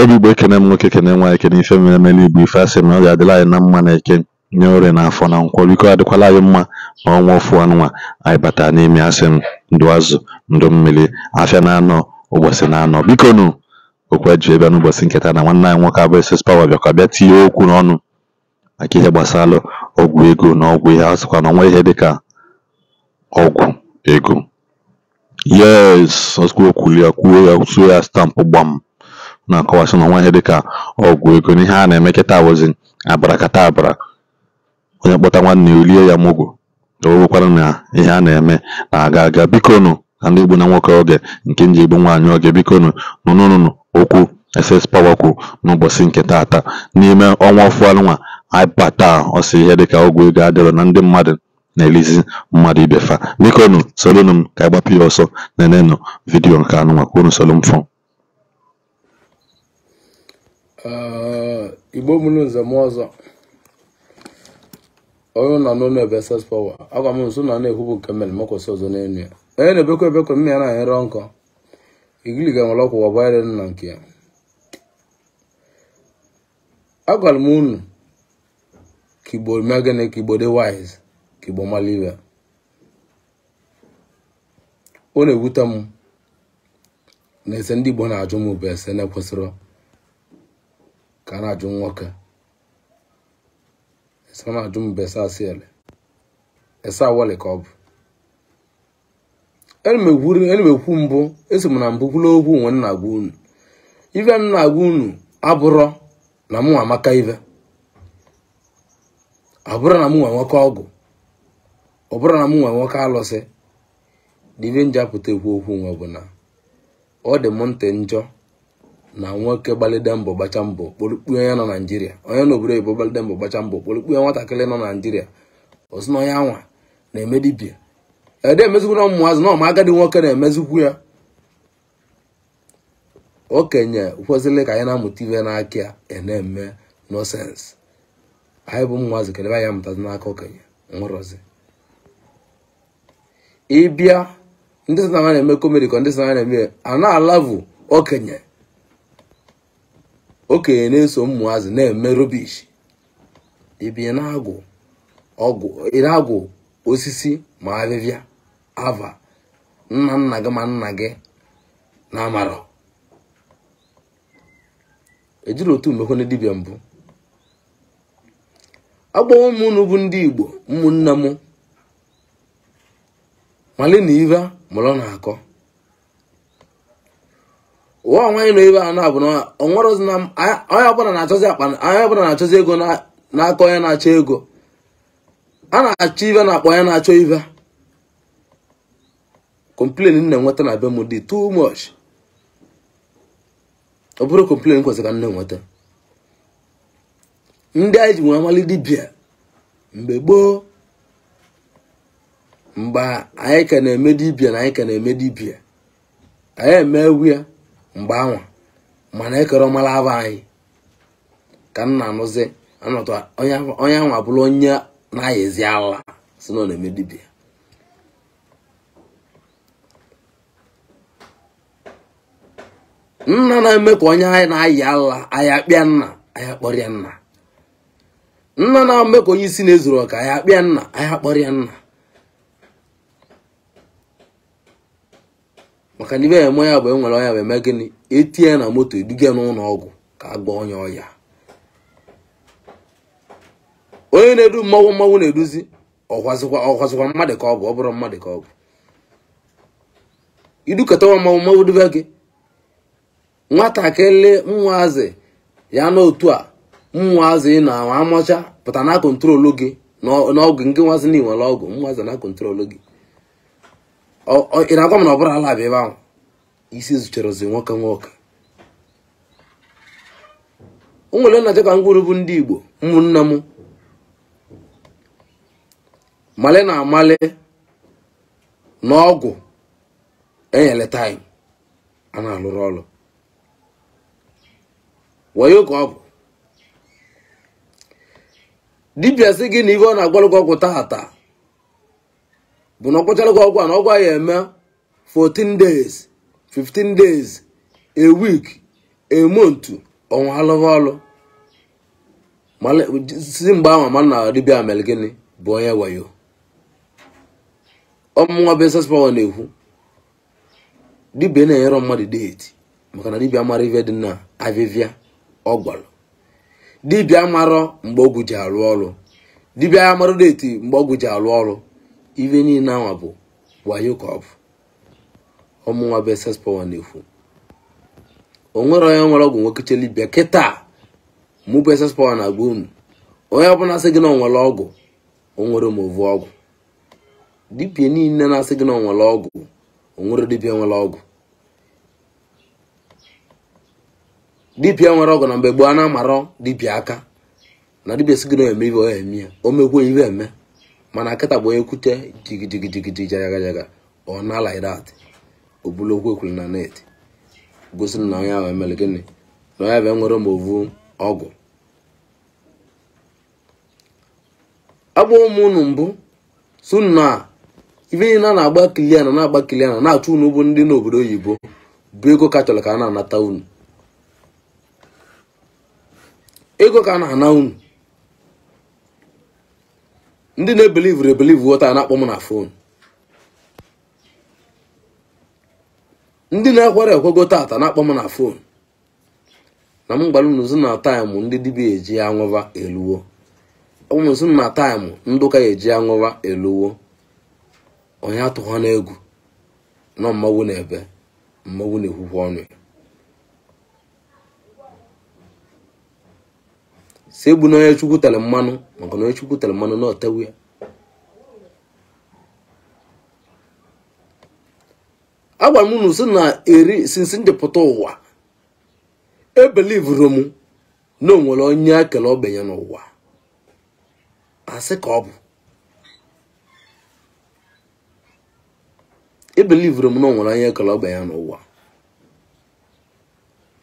Ndị Igbo kene m nwoke kene nwa eke kene ife mere eme n'Igbo ife asị na ọ ga adịla anyị na mma eke nye orie na afọ na nkwọ, biko adịkwala anyị mma ma ọnwa ofu anụnwa anyị bata n'ime asị m ndụ azụ ndụ mmiri, afịa na-anọ ụbọchị na-anọ, Biko na okwu anyị ji bịa n'ụbọchị nketa na nwanne anyị nwoke abụọ SS Power bịakwa bịa tinye okwu n'ọnụ maka ihe gbasara ọgwụ ego na ọgwụ ihe asịkwa na ọnwa ihe dịka ọgwụ ego yes okwulie kwuo ya ya stampụ gbam na-akọwasị ụmụ ihe dịka ọgwụ ego na ihe a na-eme kịta awụzi abarakata abara onye kpọta nwanne ya olie ya mụgwụ ka na ihe a na-eme na-aga aga bikonu na ndị Igbo na nwoke oge nke nji Igbo nwaanyị oge bikonụ nụnụnụ okwu SS Power kwu n'ụbọchị nke taata n'ime ọnwa ọfụanụnwa aibata ọsọ ihe dịka ọgwụ ego adịrọ na ndị mmadụ na-elizi mmadụ ibefa bikonu solonụ m ka ịgbapụ ya ọsọ na-enenụ vidiyo nke anụnwa ka unu igbo mụrụ nzem ọzọ onye nọ n'ụlọ ebe ses pọwa agwa m nso na na-ekwubu nke mere makwụsị ọzọ n'elu ya onye na-ebekwa ebekwa mmiri ya na ahịrị nkọ igili ga-enwere ọkwụwa bayere nna nke ya agwara m unu ka igbo mee gịnị ka igbo dị wise ka igbo mara ibe ọ na-ewute m na ese ndị igbo na-ajụ m bụ ese na-ekwesịrị ka a na-ajụ nwoke a na-ajụ mbe sasiele esa wali ka ọ bụ elimekwu mbụ esi m na mbụ kwula okwu nwe nna gwa unu ive m na-agwa unu abụrọ na mụ amaka ive abụrọ na mụ nwoke ọgụ ọ bụrụ na mụ nwoke alụsị na nje njapụta ekwu okwu nwe bụ na ọ dị m ntị njọ na nwoke gbalịde mbọ gbacha mbọ kpolukpue onye nọ naijiria onye na obodo oyibo gbalịde mbọ gbacha mbọ kpolukpue nwatakịrị nọ naijiria ozi na onye anwa na-eme dibia ede emezikwu na ụmụazị na ọma agadi nwoke na-emezikwu ya okenye kwesịrị ka anyị na-amụta ibe n'aka ya e na-eme nọsensị anyị bụ ụmụazị kedebe anyị amụtazi n'aka okenye nwụrụzi ịbịa ndị sị na ha na-eme komedi ka ndị sị na ha na-eme a na-alavu okenye okenye na-eso ụmụazị na-eme rubish ibi na-agụ osisi ma ahịhịa ava nna nna gị ma nna gị na amarọ ejiri otu mmekwe na dibịa mbụ agbawo m bụ ndị igbo ụmụnne m malina ive mụrụ na-akọ ụwa onwe anyị ebe a na-abụ na onye ọbụla na-achọzi akpa onye ọbụla na-achọzi ego n'aka onye na-achọ ego a na-achọ ive na-akpa onye na-achọ ive komplen na nweta na be m dị too much ọ bụrụ complain kwesịrị ka nne nweta ndị anyị ji nwee amali dibia mgbe gboo mgbe anyị ka na-eme dibịa na anyị ka na-eme dibia anyị emewu ya mgbe anwa mana ekere ọmala aba anyị ka m na-anụzi anọtụ onye anwa bụrụ onye na-ayezi ala si na na-eme dibịa nna na-eme ka onye anyị na-ayị ala anyị akpịa nna anyị akpọrịa nna nna na-eme ka onye isi na-ezuru ọka anyị akpịa nna anyị akpọrịa nna maka na ibe eme ya bụ enwere ọya bụ eme gịnị etinye na moto eduga n'ụlọ ọgwụ ka a gwọọ onye ọya onye na-edu mmanwụ mmanwụ na-eduzi ọkwazikwa mmadụ ka ọgwụ ọ bụrụ mmadụ ka ọgwụ idukọtawa mmanwụ mmanwụ dube gị nwatakịrị nwaazị ya n'otu a nwaazị na amacha pụta na kọntrolu gị n'ọgwụ nke nwazị na iwere ọgwụ nwaazị na kọntrolu gị ị na-agwa m na ọ bụrụ ala abịa ebe ahụ isi zụchara ozi nwoke nwoke nwere nna dịka ngwuru bụ ndị igbo ụmụnne m male na amale na ọgwụ enyere taim a na-alụrụ ọrụ wayo ka ọ bụ dibịa gị na ibe ọ na-agbalụgwọ ọgwụ tata bụ na ọkpọchara gị ọgwụ a na ọgwụ a ya eme 14 days 15 days a week a month ọnwa alụghị ọlụ si mgbe ahụ ma na dibịa mere gịnị bụ onye wayo ọmụnwa besespawa na-ekwu Dibia na-enyere mmadụ deeti maka na dibia mara ife dị na avivia ọ gwara dibịa mara mgbe ọgwụ ji arụ ọrụ Dibia ya mara deeti mgbe ọgwụ ji arụ ọrụ ife niile anwa bụ wayo ka ọ bụ ọmụnwa bụ ss power na efu o nwere onye nwere ọgwụ nwoke nwekechelibia kịta mụ bụ eses power na-agba unu onye ọbụla asị gị na onwere ọgwụ onwere omovu ọgwụ dibịa niile na-asị gị na onwere ọgwụ onwere dibịa nwere ọgwụ dibịa nwere ọgwụ na mgbe gboo a na-amarọ dibịa aka na dibịa sị gị na eme ibe ọ eme ya o mekwa ibe eme mana nkịta bụ onye kwute jigijigijigiji jagajagajaga ọ na laidat o bulu okwu ekwuru na net gosiri na onye ahụ emere gịnị na onye bụ nwere movu ọgwụ agba ụmụ unu mbụ suna ife ihe na na-agba kiliana na agba kilia na achụ unu bụ ndị n'obodo oyibo bụ ego ka chọrọ ka a na-anata unu ego ka a na-ana unu ndị na-ebelivr ebelivu taa na-akpọ m na fon ndị na-ekwere ekwego tata na-akpọ m na fon na m gwara unu na taịmụ ndị dibia eji aṅụva eluwo ọmụmụzi na taịmụ ndụka eji aṅụva eluwo onye atụha na egwu nọ mmanwụ na ebe mmanwụ na-ekwukwa ọnụ ya si egbu na onye chukwu tere mmanụ maka na onye chukwu tere mmanụ na otewu ya agwara m unu si na eri sinsi ndị ụwa ebelivuru m na onwere onye akele ogbenye n'ụwa asị ka ọ bụ ebelivuru m na onwere onye akele ogbenye n'ụwa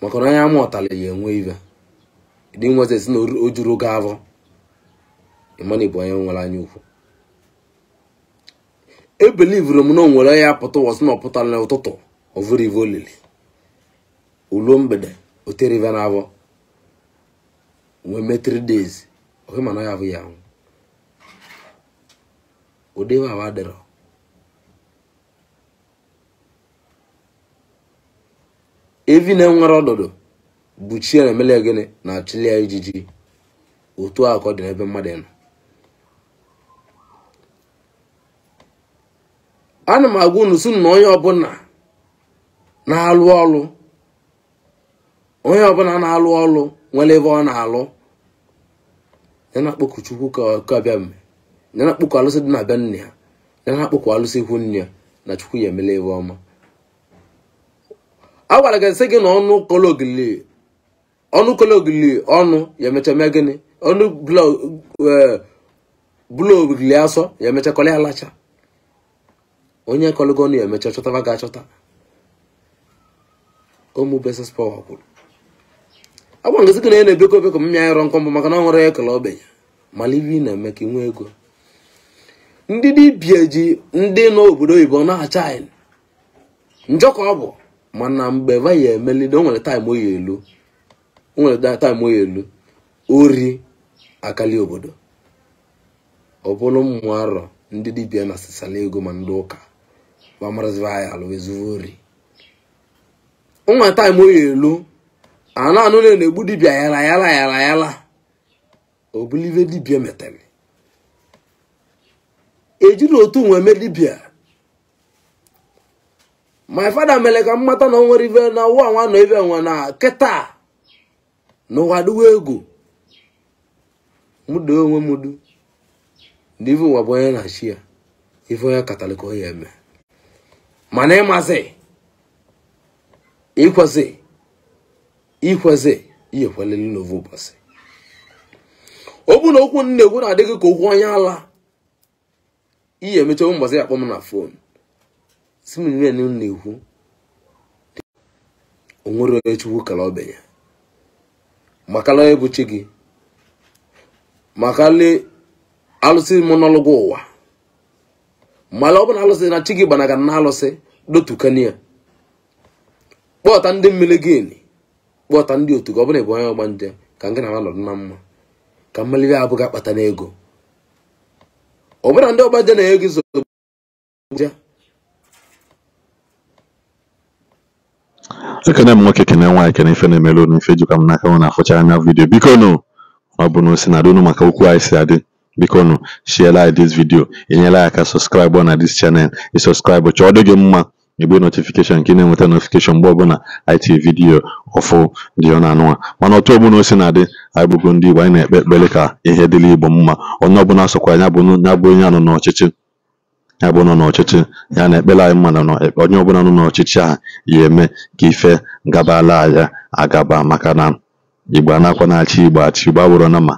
maka na onye ama ọtara ya enwe ibe dị nwezi na o juru oge avọ bụ onye nwere anya ukwu ebelivuru m na o nwere ya pụta ụwa sị na ọ pụtara n'ụtụtụ ovurive olili uluo mgbede oterive na avọ wee mee 3 days ohe mana ya abụghị anwụ odebe awa dịrọ evi na-enwere ọdụdụ buchie na-emele ya gịnị na-achụli ya ijiji otu a ka ọ dị n'ebe mmadụ nọ ana m agwa unu sunu na onye ọbụla na-alụ ọlụ onye ọbụla na-alụ ọlụ nwere ebe ọ na-alụ ya na-akpọku chukwu ka bịa mme ya na-akpọku alụsị dị na bịa nne ya ya na-akpọku alụsị ihu nne ya na chukwu ya emele ebe ọma a gwara gị sị gị na ọnụ kọlọ ogili ọnụ kologili ọnụ ya emecha mee gịnị ọnụ bụla e, ogili asọ ya emecha kọlị alacha onye kọlụgo ọnụ ya emecha chọtaba ga achọta ụmụ beses pọwa kwuru agba ngozi gị na ya na-ebekọ ebekọ m ya ịrọ nkọ mbụ maka na ọ nwere ekele ogbenye mala ibi na-eme ka inwe ego ndị dibịa ji ndị nọ obodo oyibo na-acha anyị njọ ka ọ bụ mana mgbe va ya emelide o nwere taịm oyi elu o nwere data elu ori akali obodo ọ bụrụ mmụ arọ ndị dibia na sisala ego ma ndị ụka ma maraziva anyị alụ ezuvo ori nwa taim oyi elu anụ anụ na egbu dibia yala yala yala yala obulive dibia metere ejiri otu nweme mee dibịa my fada mere ka m mata na o nwere ive na ụwa nwa nọ ive nwa na kịta n'ụwa dịwa egwu mụdo onwe m du na ife nwa bụ onye na-achị ya ife onye katọlik onye eme mana ịmazi ikwezi ikwezi ihe kwelele n'ovu ụbọchị okwu na okwu na-ekwu na-adịghị ka okwu onye ala ihe emecha ụbọchị akpọ m na fon si m na-ekwu onwere onye chukwu kere ọbịa ya makala ebuchi gị makali alụsị monọlụgụ ụwa mala ọ bụla alụsị na chi gị gbanaga na alụsị dotukania kpọta ndị mmiri gịnị kpọta ndị otu gị ọ bụla ịbụ onye ọgba nje ka gị na ha nọrọ na mma ka mmiri abụghị akpata n'ego ọ bụla ndị ọgba nje na-ego ekene m nwoke kene nwaanyị kene ife na-emere unu ife jikwa m n'aka unu na-afụcha anya vidiyo bikonu ọ bụ na o si na unu maka okwu anyị si adị bikonu shiela anyị dis vidiyo enyela ya aka sọskraịbụ na dis chanel ị sọskraịbụ chọọ dị gị mma igbe notifikeshọn ka ị na-enweta notifikeshọn mgbe ọbụla anyị tiri vidiyo ọfụ dị ọ na-anụwa mana otu ọbụla o si na adị anyị bụgo ndị Igbo anyị na-ekpe ekpere ka ihe dịrị Igbo mma onye ọbụla sokwa anya bụ onye anọ n'ọchịchị ya bụ nọ n'ọchịchị ya na-ekpere anyị mma na onye ọbụla nọ n'ọchịchị a, ya eme ka ife gabala ya agaba maka na igbo anakwa na-achị igbo achị igbo abụrụ na ma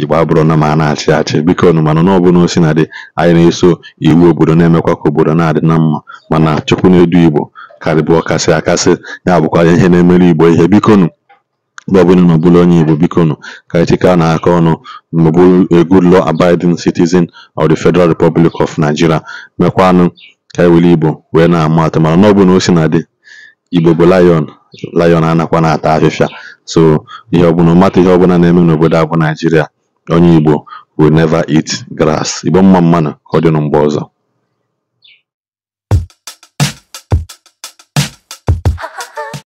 igbo abụrụ na ma a na-achị achị biko nụ mana na ọbụla osi na dị anyị na-eso iwu obodo na-emekwa ka obodo na-adị na mma mana chukwu na-edu igbo karịbụ ọkasị akasị ya bụkwa ihe na-emere igbo ihe biko ebe ọbụla unu bụrụ onye Igbo bikonu ka anyị na n'aka ọnụ ma bụrụ law abiding citizen of the Federal Republic of Nigeria mekwanụ ka anyị e Igbo wee na-ama atụ mana n'ọbụ na o si na dị Igbo bụ lion lion anakwa na-ata afịfịa so ihe ọbụla mata ihe ọbụla na-eme n'obodo agụ Naijiria onye Igbo will never eat grass Igbo mma mmanụ ka ọ dị mgbe ọzọ